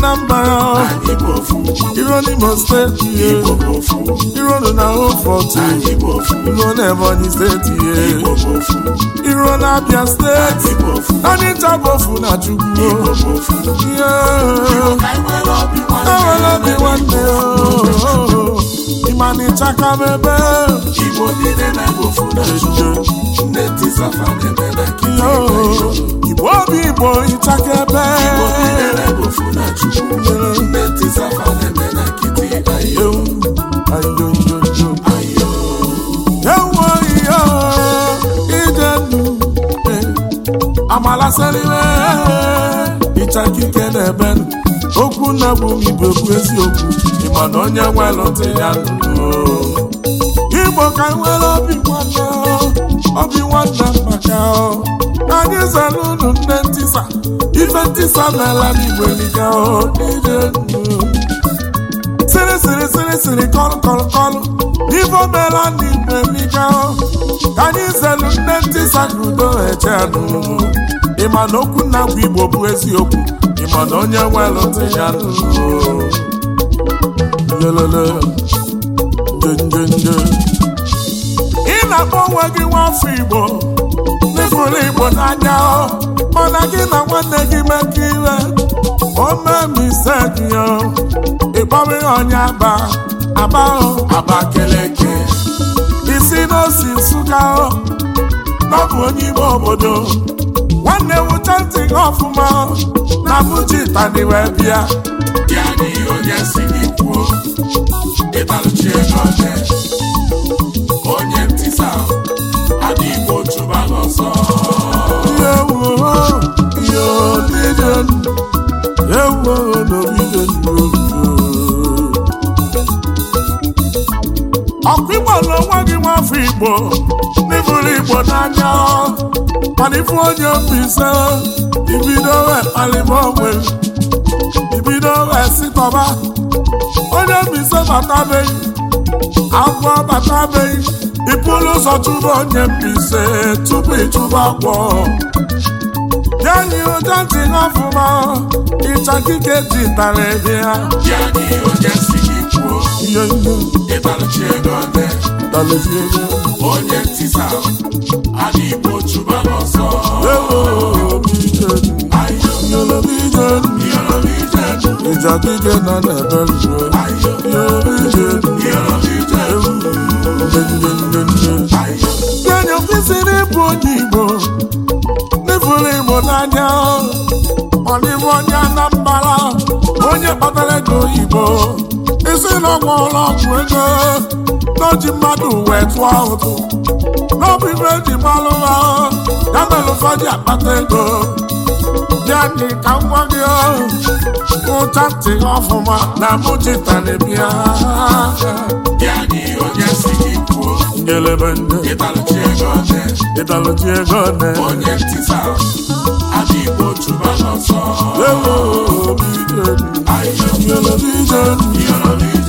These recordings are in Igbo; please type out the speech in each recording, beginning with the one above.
na mba! iro n'Imo steeti ihe iro na Ofortu iro na Ebonyi steeti ihe iro na Abia steeti Onitsha bụ na Chukwu ihe enwere obi nwanne ịma na akike na-ebenụ okwu na bụ igbo bụ eziokwu ịma na onye ya nụrụ igbo ka nwere obi nwanne obi nwanna maka anyị zara unu nne ntisa ife n'ala n'igbo kọlụ kọlụ kọlụ omela ịma na okwu nna bụ igbo bụ eziokwu ịma na onye nwelụ ntị ya ị na-akpọ onwe gị nwafọ igbo n'ịfụrụ igbo n'anya mana gị na nwanne gị mekọ iwe omemisegiyo ịkpọrọ ihe onye aba aba aba keleke isi n'osi nsụga ọ bụ onye ime obodo na-ewucha ntị gị ọfụma na mụji tani wee bịa ya na ihe onye si gị kwuo ego onye ntịsa ọsọ ọkụ igbo na onwe gị nwafọ igbo igbo n'anya mana ifu onye mbise ibido wee kpalịba onwe ibido wee sitọba onye mbise batabeghị agwọ batabeghị ịpụrụ ụzọ chụba onye mbise tupu ịchụba agwọ yanyi ụja ntị n'ọfụma kike ji tara ebe ya yanyi ụja si gị kwuo ihe ihe ego ọdị dalozie ego onye ntisa igbo chụba na na-ebe nzuo kwesịrị ịbụ onye igbo n'ifuru igbo n'anya onye anambara onye kpatara ego oyibo isi na ọgwụ ụlọ ọgwụ ego n'oji mmadụ wee tụọ ụtụ n'ọbụ ibe eji gbalụ ha ya mere ụfọdụ akpata ego bịa ka nwa gị ụcha ntị ọfụma na mụchita na ịdalụchi ego ne onye ntịsa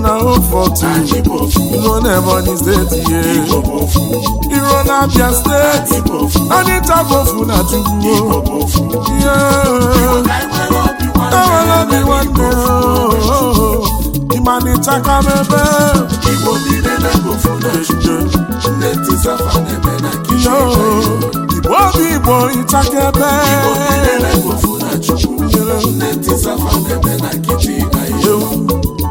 na hope iro na steeti ye iro na Abia steeti anịta bofu na Chukwu ye enwere obi nwanne ịmanịcha ka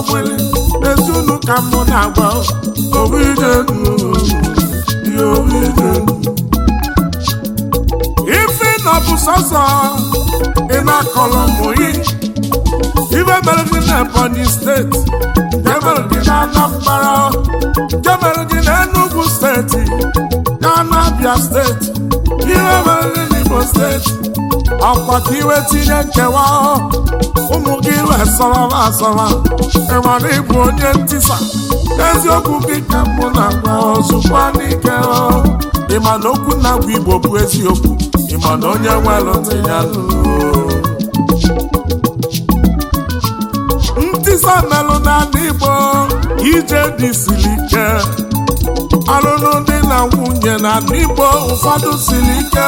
ọgbụlị ezunu ka mụ na-agba ife na bụ sọsọ ị na-akọlọ mụyi ibe mere gị na Ebonyi steeti nke mere gị na Anambra nke mere gị na Enugu steeti na anabia steeti ibe mere na Imo steeti akwa ka iwe tinye nkewa ụmụ gị wee sọrọba asọrọ ịmara ịbụ onye ntisa eziokwu gị ka mụ na-agwa ozugbo n'ike ịma na okwu na-agwa igbo bụ eziokwu ịma na onye nwelụtụ ya ntisa melụ n'ala igbo ije dị siri ike ọlụlụ dị na nwunye na n'igbo ụfọdụ siri ike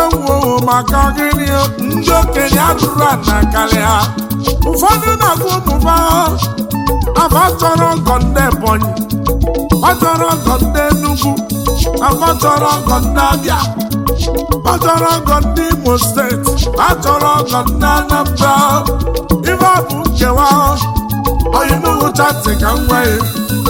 ewuowo maka gịnị ndị okenye atụrụ ana karịa ụfọdụ na-agụ ụmụba afa chọrọ ndị Ebonyi ọ chọrọ ọgọ ndị Enugu afa chọrọ ọgọ ndị Abịa ọ chọrọ ọgọ ndị Imo steeti ọ chọrọ ọgọ ndị Anambra ife ọ bụ nkewa ọyịnuhu chati ka m nwee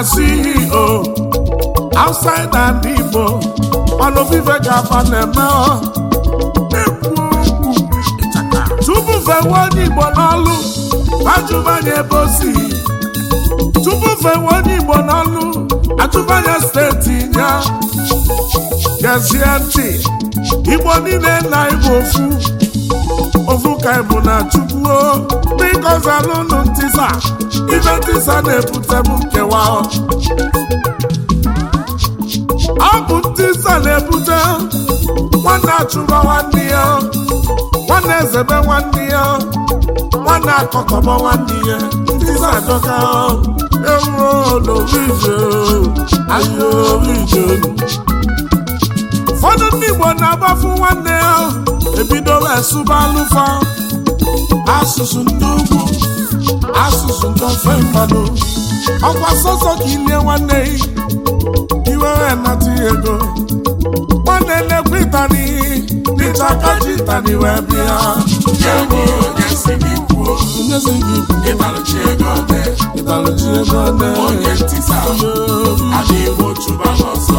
na CEO outside and Igbo ọnụ vive ga-aba na-eme tupu fewe onye Igbo n'ọlụ ajụmanya ebe o tupu fewe onye Igbo n'ọlụ ajụmanya steeti ya gezie ntị niile na Igbo ofu ovuka ịbụ na chukwuo biko zalụnụ ntisa ibe ntisa na-ebutebu ebute nkewa ọ bụ ntisa na-ebute nwanne achụba nwanne ya nwanne ezebe nwanne ya nwanne akọkọba nwanne ya ntisa adọka ewuro ije, ahịa ije. ụfọdụ ndị Igbo na-agbafu nwanne ya ebidola esụba alụfa asụsụ ndị ugwu asụsụ ndị ofe mmadụ ọkwa sọsọ ka ilie nwanne iwere nata ego ọ na elekwa ịtani dịta kaji ịtani wee bịa onyezi gị ịtalụchi ego ọdị ịtalụchi ego ọdị onye ntị sa adịghị otu ba n'ọsọ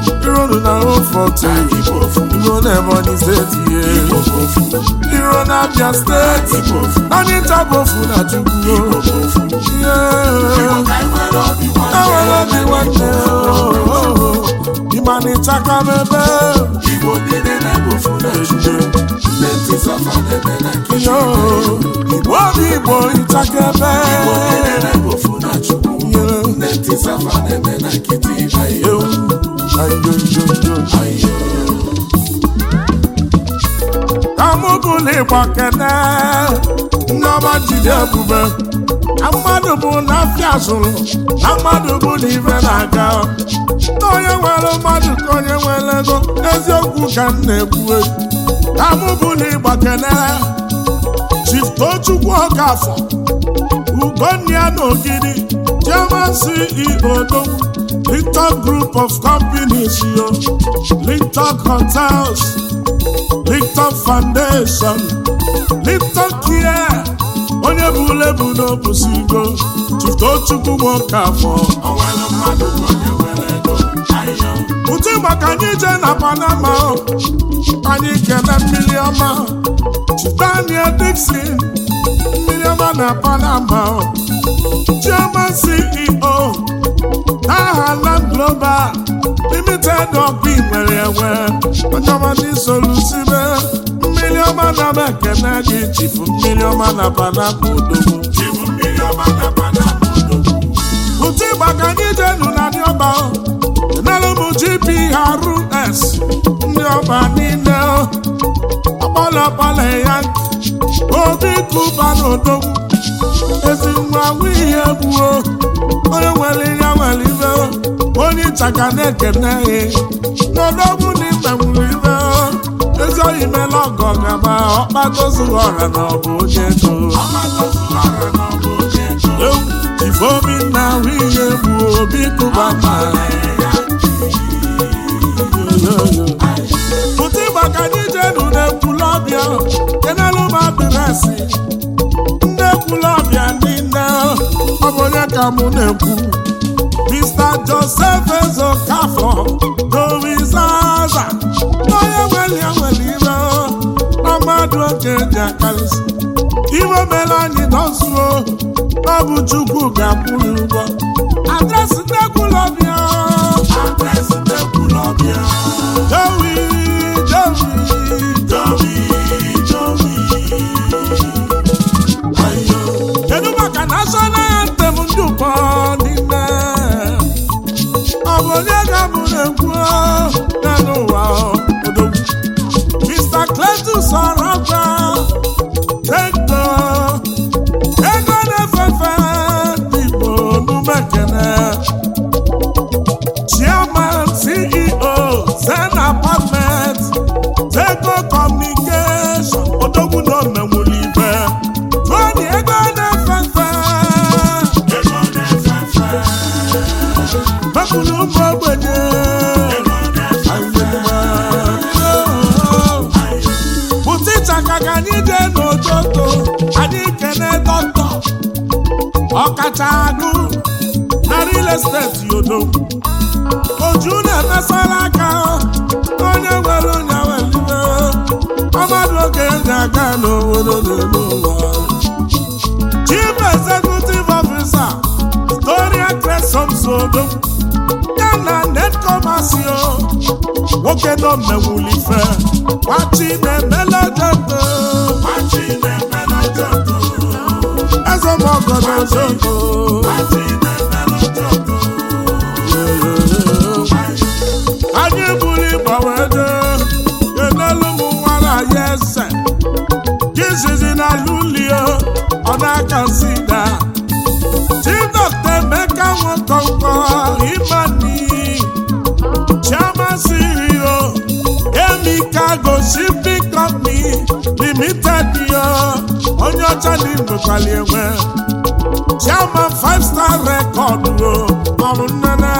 iro na ofọte igbo n'Ebonyi steeti ihe iro na Abia steeti naanị ntabofu na Chukwu ihe enwere obi nwanne ịmanịchaka mebe igbo obi igbo ịchaka ebe kamụbụligba kene nneọma jide ebube na mmadụ bụ na afịa zụrụ na mmadụ bụ na na-aga na onye nwere mmadụ ka onye nwere ego eziokwu ka m na-ekwu kamụbụligba kene chiftochukwu ọkafọ ugonna ya na ogidi chioma CEO odogwu Linton Group of Companies, yo. Linton Hotels, Linton Foundation, Linton Care, onye bụ ule bụ n'obusigo, Chiftochukwu nwoke afọ. Ụtụ maka anyị je na Panama, anyị kene mmiri ọma, Daniel Dixon, mmiri ọma na Panama, Chairman CEO. aha Land Global limited ọkụ nwere enwe onyeọmadị solusibe mmiri ọma na m na gị chifu mmiri ọma na panapa odogwu otu ịgba ka anyị jenu na ndị ọba enelu GPRS ndị ọba niile ọkpọlọkpọlọ ya obi kụba n'odogwu ezi nwa ihe gbuo onye nwere ihe nwere ibe onye ịchaka na-ekene n'odogwu na ibe nwere ibe ezi oyi mela ọgọ gaba ọkpatozuru ọra na ọ bụ onye ego ifeobi na ahụ ihe gbuo obi kụba mma asị nne ekwula ọbịa niile ọ bụ onye ka mụ na-ekwu Mr. Joseph Ezokafọ Dorizaza onye nwere ya nwere ire na mmadụ oke ji akarịsị iwe mere anyị nọzuo ọ bụ Chukwu ga-akwụrụ ụgwọ adresị nne ekwula ọbịa adresị nne ekwula ọbịa Jowi Jowi agụ na real estate yodo oju na-emesara aka onye nwere onye welibe ọmadụ oge ga-aga n'obodo n'elu ụwa chief executive officer Gloria Cresomsodo ya na netkomasio nwoke nọ mmewulife gbachi na-emele debe Ogodogo. anyị buru ịgba wee dee enelu nwara na lulio ọ na-aka emeka nwekọnkọ imani chiamasirio emika limited yo onye ọcha na imbekwali enwe chairman five star record o maọbụ nnene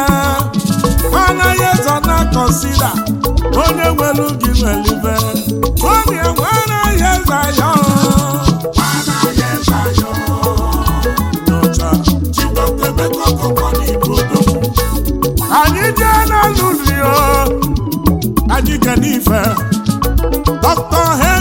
anaghị ezo na kọnsida onye nwere gị nwelibe onye nwe anaghị eze anya anyị jee na rio anyị ga n'ife dọkta he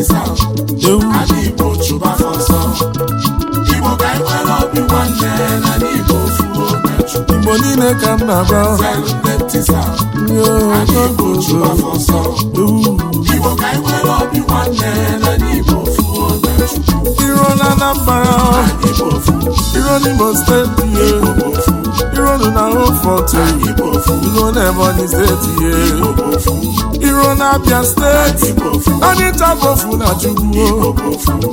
asịsa Igbo Igbo ka anyị nwere obi nwanne na n'Igbo Igbo niile ka m na-agba Igbo ka anyị nwere obi nwanne na n'Igbo Iro na Anambra Iro n'Imo steeti iro na Oforto iru na Ebonyi steeti ye iru na Abia steeti Onitsha bofu na Chukwu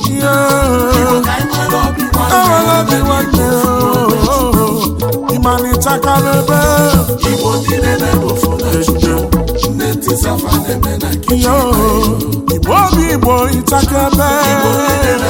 ihe ewela obi nwanne ịma na ịchakala ebe igbo obi igbo ịchaka ebe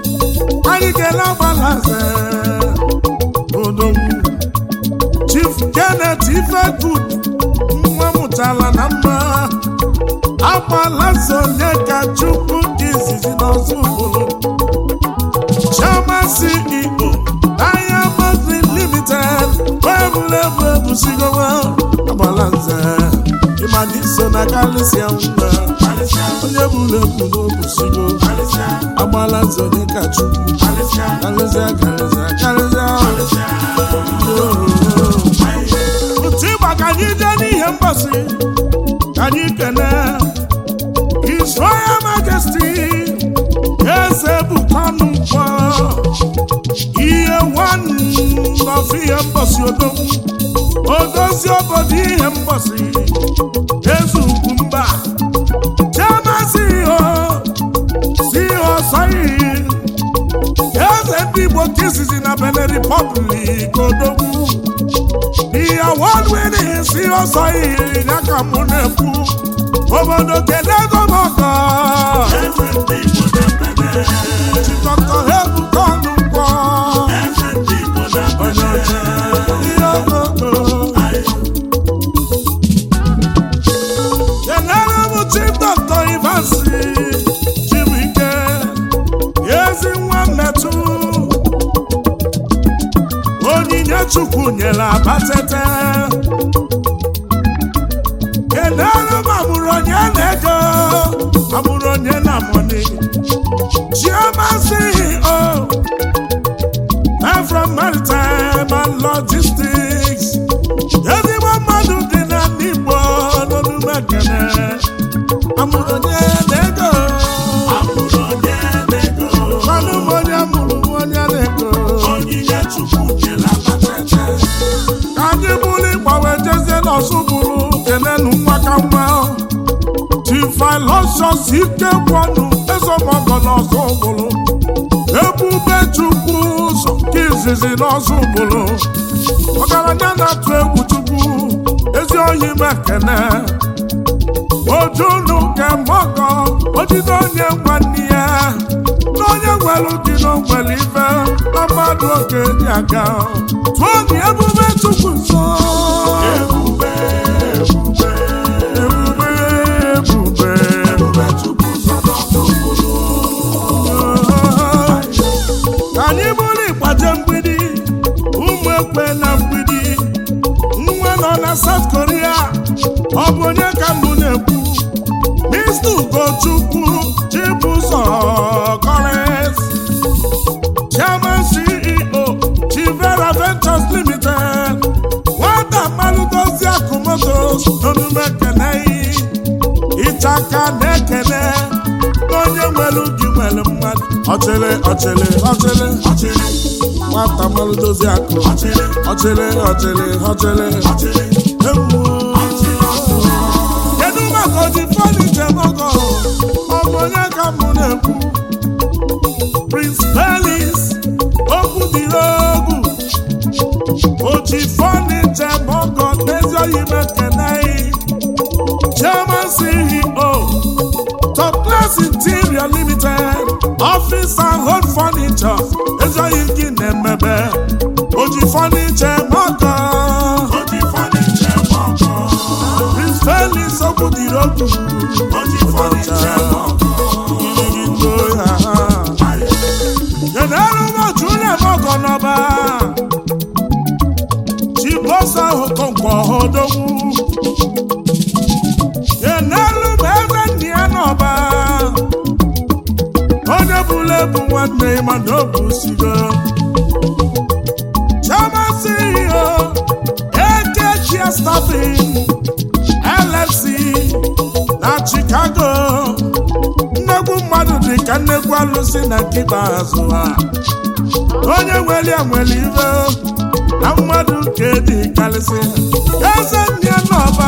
Adigela Gbalaze Odogwu Chief Kenneth Ifegud nwa mụtara na mma Agbalaze onye ka Chukwu dị izizi n'ọzọ ugboro Chioma si Igbo Diamond Limited wee bụrụ ebu ebusigowa Agbalaze ma dị na kalisia mma onye bụrụ ebu n'obusigo agbala nzọ dị ka chukwu karịsịa karịsịa karịsịa otu ịgba ka anyị jee n'ihe mgbasị ka anyị kene His Royal Majesty eze bụkwanụ mkpọ nwanne ihe si odo odozi obodo ihe mgbọsi eze ugwu mba chiamasi ihe si ihe ọsọ iyi eze ndị igbo izizi na odogwu si ọsọ iyi ya mụ na obodo kedu ọzọ bụrụ kenenu nwakamma tifilosios ikekwanụ ezemọgọna ọzọ bụrụ ebube chukwu ụzọ nke izizi n'ọzọ bụrụ ọgaranya na-atụ egwu chukwu ezi oyi mekene ojunu nke mọgọ ojide onye nwanne ya n'onye onye nwere dị n'ogwere ibe na mmadụ oge dị aga tụọ dị ebube chukwu nsọ okpe na mgbidi nwa nọ na South Korea ọ bụ onye ka mbụ na-ekwu Mr. Ugochukwu Chibụzọ Collins Chairman CEO Chivera Ventures Limited nwata mmanụ dozi akụmotos n'omume kenei ịchaka na-ekele onye nwere ubi nwere mmadụ ọchịrị ọchịrị ọchịrị ọchịrị nwata mmanụ dozie akụ ọchịrị ọchịrị ọchịrị kedu maka oji fọdụ njem ọgọ ọbụ ka mụ na-ekwu Prince Pelis okwu dịrị egwu oji fọdụ njem ọgọ n'ezi oyi mekene fọniche mọkọ Prince Felix Obudiri Ogu na nkịta azụ ha onye nwere nwere ibe na mmadụ nke dị karịsị eze ndị n'ọba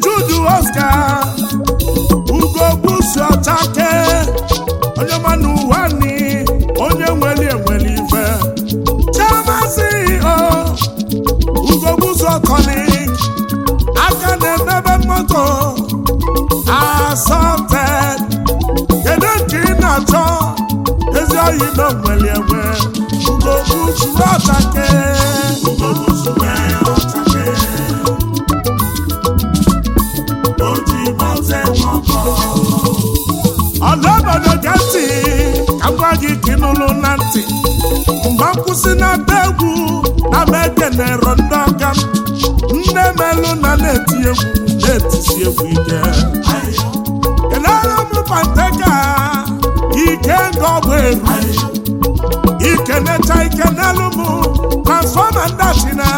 Jude Oscar si n'ata egwu na na ekenero ndị ọka m nne melụ na na-eti egwu na-etisi egwu ike kedara m panteka ike egwu. Ike eru ikenecha ike n'elu m transfọma ndị na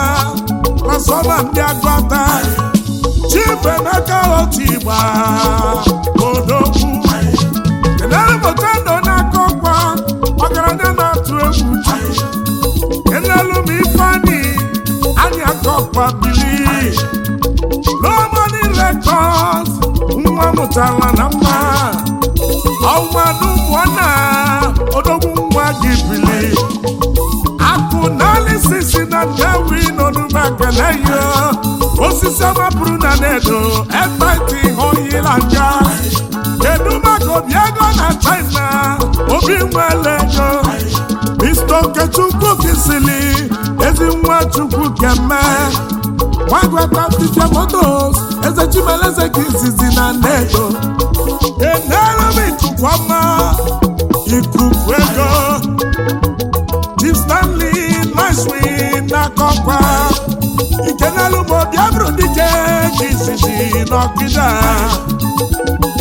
transfọma ndị agụata chifu emeka otu igba odogwu akwa bili lomoni rekọd nwa mụtara na mma ọnwadubụọna odogwu nwa gị bili akụ naanị sisi na ndewi n'onumakeleyo osisi ọmapụrụ na nedo ekwentị oyila nja kedu maka obi ego na china obi nwele ego Mr. Okechukwu kisili ezi nwa Chukwu keme nwagwata Fifia Motos eze Chimeleze izizi na nnedo enere m ikuku ọma ikuku ego Chief na Nashwin n'akọkwa ikenelu bụ Biafra dike ka izizi n'ọkịda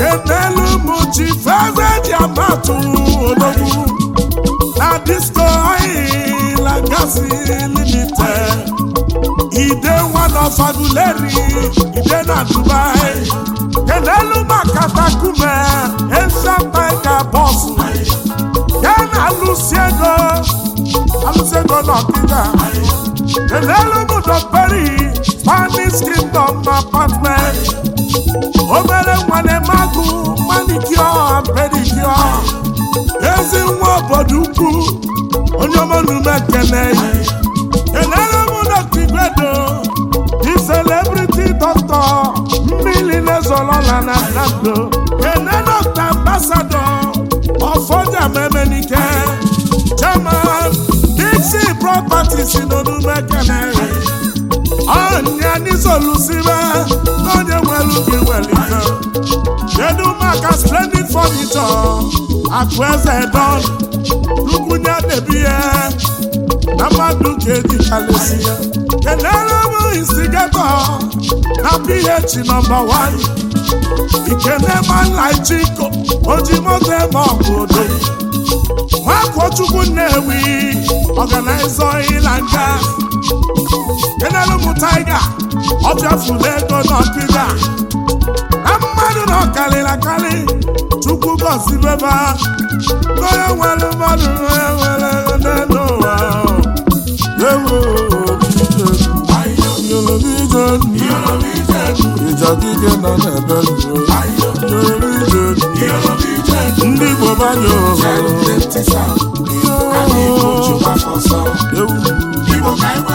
enelu m Chief Eze ji amatụ disco oil and gas limited ide one of aguleri ide na dubai kenelu makatakume efemeka bọsụ ya na alụsiego alụsiego n'ọkịda kenelu peri spanish kingdom apartment obere nwane magụ manicure pedicure ezi nwa obodo ukwu onye ọma n'ume ekene enere m dọkta igwedo di celebrity doctor mmiri na-ezolola na nando ene dọkta ambasado ọfọja memenike German, dixi properties nọ n'ume ekene ọnya n'izolusibe n'onye nwere ubi welite kedu maka splendid furniture akụ eze na ya mmadụ ka edikalesi ya kenere bụ instigato na ph nọmba 1 ikenemanlaijiko eme nnewi ọganaiza ịla nga enelu m taiga ọ bịafula ego n'ọkịda na mmadụ na ọkarịrị akarị chukwu gọzibeba onye nwere mmadụ onye nwere n'elu ụwa ewu ijadike nọ n'ebe ndị Igbo banye ohere ewu